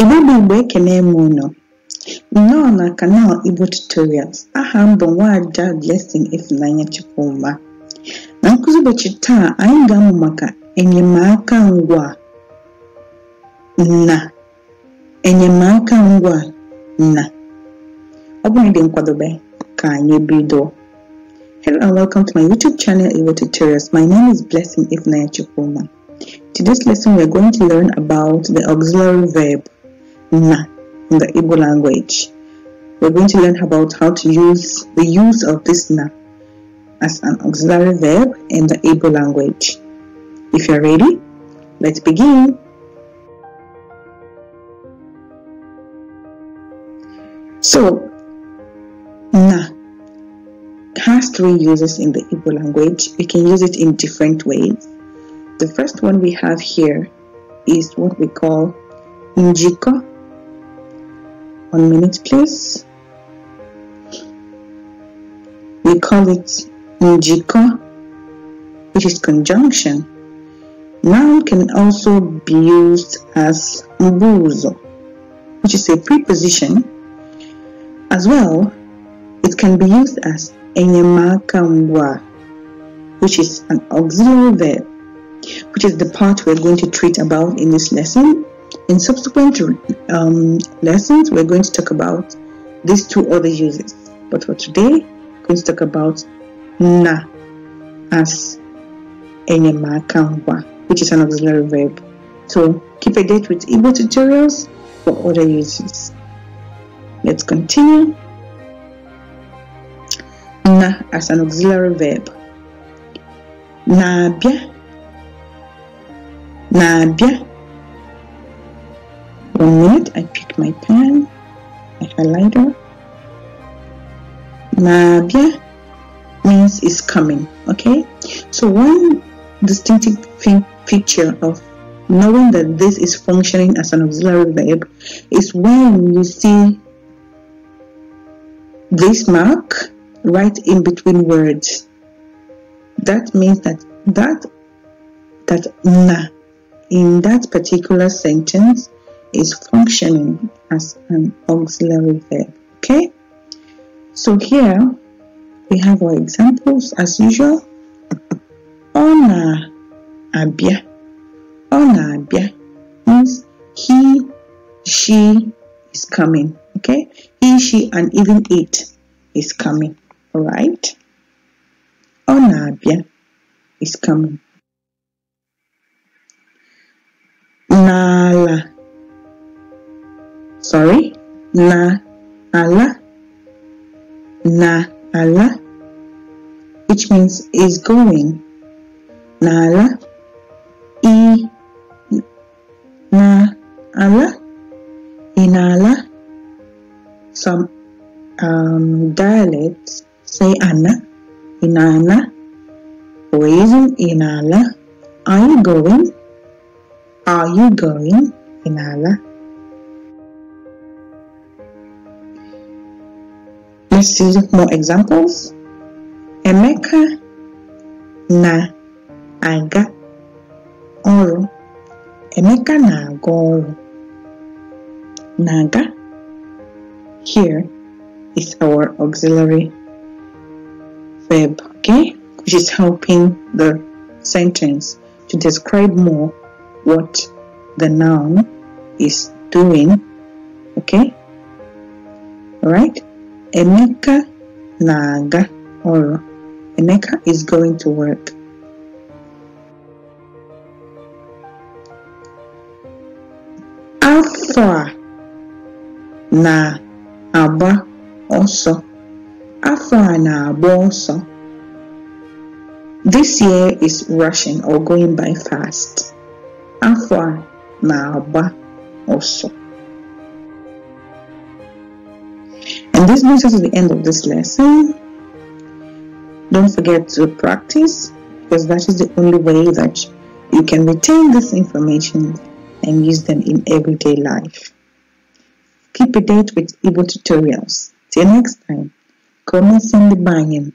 Igbo bụ Igbo ekene m unu nnọọ na kanal Igbo Tutorials aha m bụ nwaada Blessing Ifunanya Chukwuma na nkụzi ụbọchị taa anyị ga-amụ maka enyemaka ngwa na enyemaka ngwa na ọ bụghị dị nkwadobe ka anyị bido Hello and welcome to my YouTube channel Igbo Tutorials. My name is Blessing Ifunanya Chukwuma. Today's lesson we are going to learn about the auxiliary verb na in the Igbo language. We're going to learn about how to use the use of this na as an auxiliary verb in the Igbo language. If you're ready, let's begin. So, na has three uses in the Igbo language. We can use it in different ways. The first one we have here is what we call njiko one minute, please. We call it njiko, which is conjunction. Noun can also be used as mbuzo, which is a preposition. As well, it can be used as enyemaka which is an auxiliary verb, which is the part we're going to treat about in this lesson in subsequent um, lessons, we're going to talk about these two other uses. But for today, we're going to talk about na as enyemakangwa, which is an auxiliary verb. So keep a date with Igbo tutorials for other uses. Let's continue. Na as an auxiliary verb. Na bia. Na bia. From that, I pick my pen, my highlighter. Mabia means is coming, okay? So one distinctive feature of knowing that this is functioning as an auxiliary verb is when you see this mark right in between words. That means that that that na in that particular sentence is functioning as an auxiliary verb. Okay, so here we have our examples as usual. Ona abia. Ona abia means he, she is coming. Okay, he, she, and even it is coming. All right. Ona abia is coming. sorry, na ala, na ala, which means is going. Na ala, i na ala, inala. Some um, dialects say ana, inana, in inala. Are you going? Are you going? Inala. Let's see more examples. Emeka na-aga ọrụ. Emeka na-aga ọrụ. Naga here is our auxiliary verb, okay? Which is helping the sentence to describe more what the noun is doing, okay? All right? Emeka naga or ọrụ. Emeka is going to work. Afọ a na-agba ọsọ. Afọ a na-agba ọsọ. This year is rushing or going by fast. Afọ a na-agba ọsọ. this brings us to the end of this lesson. Don't forget to practice because that is the only way that you can retain this information and use them in everyday life. Keep a date with Evo tutorials. Till next time, come and send the buying.